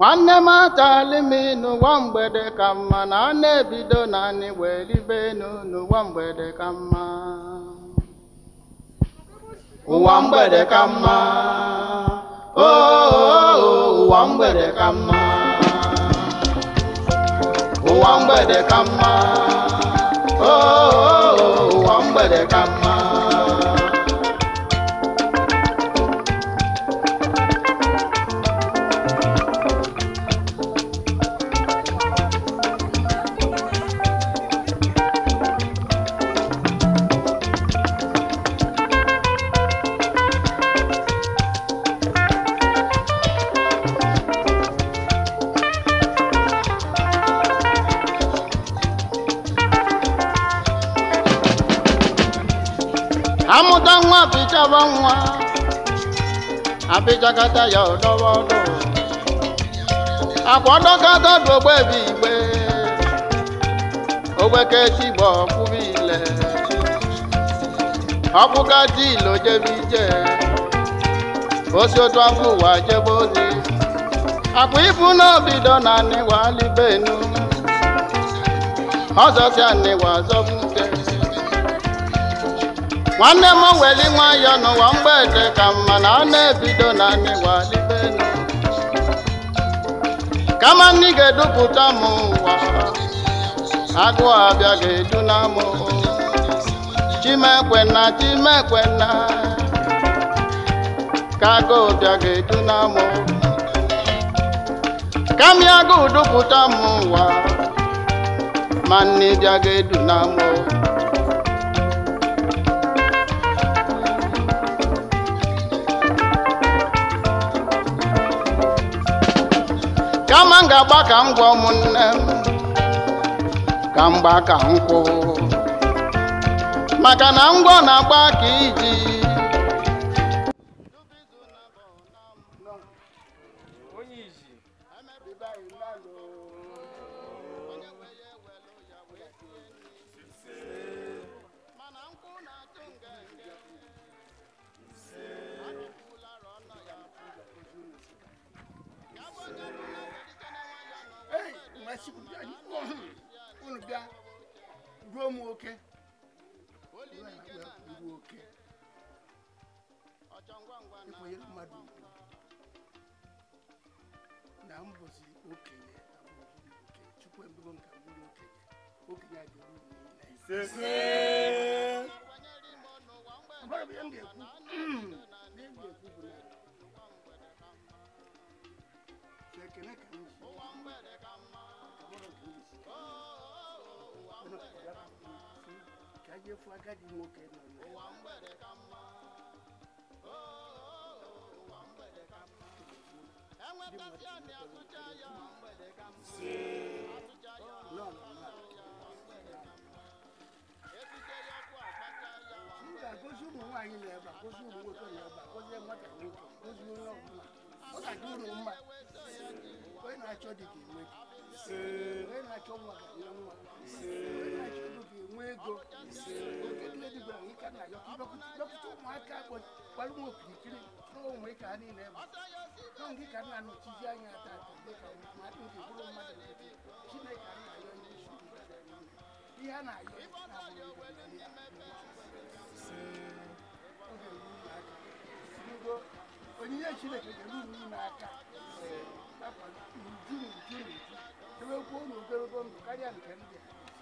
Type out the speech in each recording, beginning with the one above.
nwanne m achala ime n'ụwa mgbede ka mma na ọ na-ebido naanị wee ribe enu n'ụwa mgbede ka mma oh, oh, oh, ụwa mgbede ka mma ụwa mgbede ka mma ụwa mgbede ka mma ụwa mgbede ka mma ọdọ nwa pịchaba nwa apịchakata ya ọdọba ọdọ akwa ọdọkata dị ile ije osi otu afọ ụwa jebe ozi ibu n'obido na anịwa nwanne m weli nwayọ n'ụwa mgbede ka mma na ọ na-ebido na n'ịwalibenu kama nni ga-edupụta m ụwa agụụ abịa ga-eduna m chimekwenna chimekwenna ka agụụ bịa ga-eduna m kami agụụ dupụta m ụwa ma nni bịa ga ahịa gba ka m gwa ụmụnne m ka mgba nkwụ maka na ngwọ na-agba ka iji ụmụ oke ịkwanyere mmadụ na mbọsi okenye oke chukwu ebugo nka bụrụ okenye okenye adị uru ajẹ́fọ́ agádìí mo kẹ́ nà ní. òwà ń bẹ̀rẹ̀ ká mọ́ òwà ń bẹ̀rẹ̀ ká mọ́. ẹ̀wọ̀n tẹ́sí àní àtúnjẹ ayọ̀ òwà ń bẹ̀rẹ̀ ká mọ́. àtúnjẹ ayọ̀ òwà ń bẹ̀rẹ̀ ká mọ́. ètùjẹ yọ kó àgbájá ayọ̀ òwà ń bẹ̀rẹ̀ ká mọ́. nígbà kó súnmù wà yín lẹ̀ bà kó wò tó yẹ bà kó mọ́tà ní kó súnmù lọ́ ọ̀tà dúró ma wẹ́n náà tsọ́ dìgì wẹ́n wẹ́n náà tsọ́ wọ́n kà yọ̀ wọ́n go kedule di gbẹrẹ yìí kana yọ lọkutu mu aka bọ wàlú mu kirikiri n'o mu ika ni nẹ mu n'o mu ika na nu ti di anya ta tẹlẹ ka mu ma ti di bolo ma tẹlẹ ti ti na ika na yọ ni su na yọ na mu ni ya o de mu na aka nugo onyinye chineke ga elu mu na aka kakwa nju nju nju ebe kwuo ndụ karịa nke ndị a.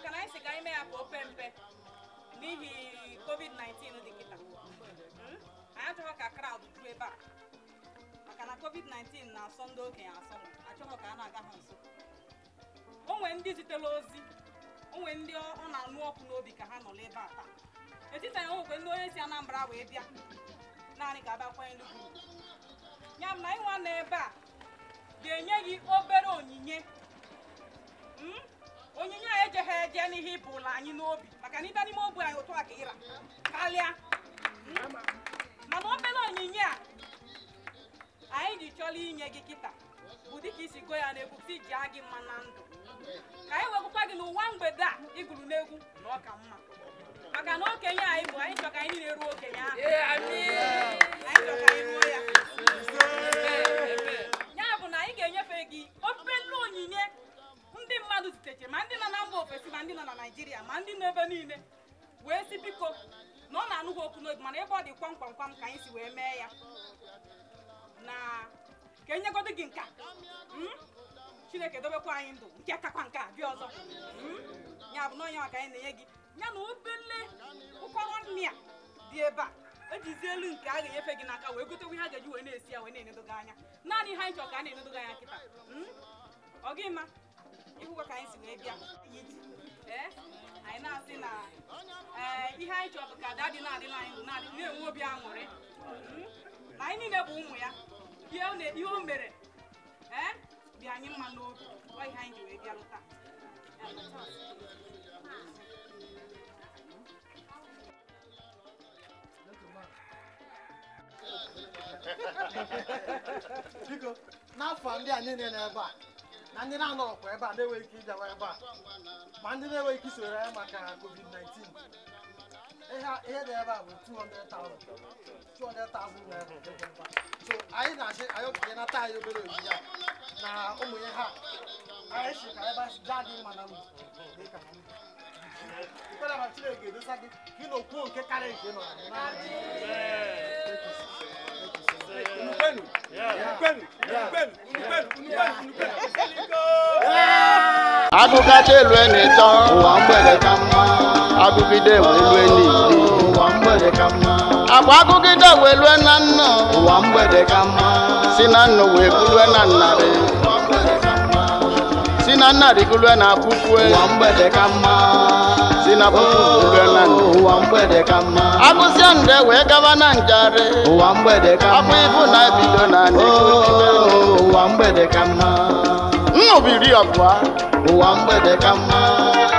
maka na anyị si ka anyị ya ka ope mpe n'ihi covid-19 dị kịta hmm? anyị achọghị ka kraụd juo ebe a maka na covid-19 na-asọ ndị okenye asọ achọghị ka a na-aga ha nso onwe ndị zitere ozi onwe ndị ọ na-anụ ọkụ n'obi ka ha nọ n'ebe a taa etiti anyị ndị onye si Anambra wee bịa naanị ka a ya m na a bịa n'ihe ịbụ ụlọ anyị n'obi maka na ịbịa n'ime ogbe anyị otu a ịra karịa hmm? mana obere onyinye a anyị ji chọrọ inye gị kịta bụ dịka isi go ya n'egwu si ji gị mma na ndụ ka anyị wekụkwa gị n'ụwa mgbede a ịgụrụ n'egwu na ọka mma maka na okenye anyị bụ anyị chọ ka anyị niile ruo okenye ahụ anyị chọ ka anyị ruo ya naijiria ma ndị n'ebe niile wee si biko na ọ na-anụghị okwu n'oge mana ebe ọ dị kwamkwam kwam ka anyị si wee mee ya na ka enyegodo gị nka hmm? chineke dobekwa anyị ndụ nke kakwa nke a bịa ọzọ hmm? ya bụ n'ọnya maka anyị na-enye gị ya na obele ụkọrọ nri a dị ebe a ejizi elu nke a ga-enyefe gị n'aka wee gotekwa ihe a ga-eji wee na-esi ya wee na-enedogo anya naanị ha anyị ka a na-enedogo anya kịta hmm? ọ gị ma ịhụkwa ka anyị si wee bịa Eh, anyị na-asị na eh, ihe anyị chọrọ ka ada dị na-adị anyị na-enwe obi aṅụrị na hmm? anyị niile bụ ụmụ ya ihe o mere ee eh, dị anyị mma n'obi ọ ihe anyị ji wee bịa lụta biko n'afọ ndị a niile n'ebe a na ndị na kwa ebe a na-enweghị ike ịbịawa ebe a ma ndị na-enweghị ike isoro ya maka covid-19 ihe dị ebe a bụ 200,000 naira so anyị na-achị anyị nata anyị obere ya na ụmụ ihe ha anyị si ka ebe asị jaa dị mma na ndụ dịka ikpere ma chineke edosa gị gị na okwu nke karịa nke nọ na agụgacha elu na-eto ụwa mgbede ka mma agụgide wee elu n'ili ụwa mgbede ka mma agba agụgide elu lue na nna ụwa mgbede ka mma si na nna wee bulue na nnarị si na nnarị gulue na akwụkwọ ụwa mgbede ka mma sinapo uganani akwụsịa wee gaba na njari afọ ibu na ebido na nnubiri ọbụa oh, ụwa mgbede ka mma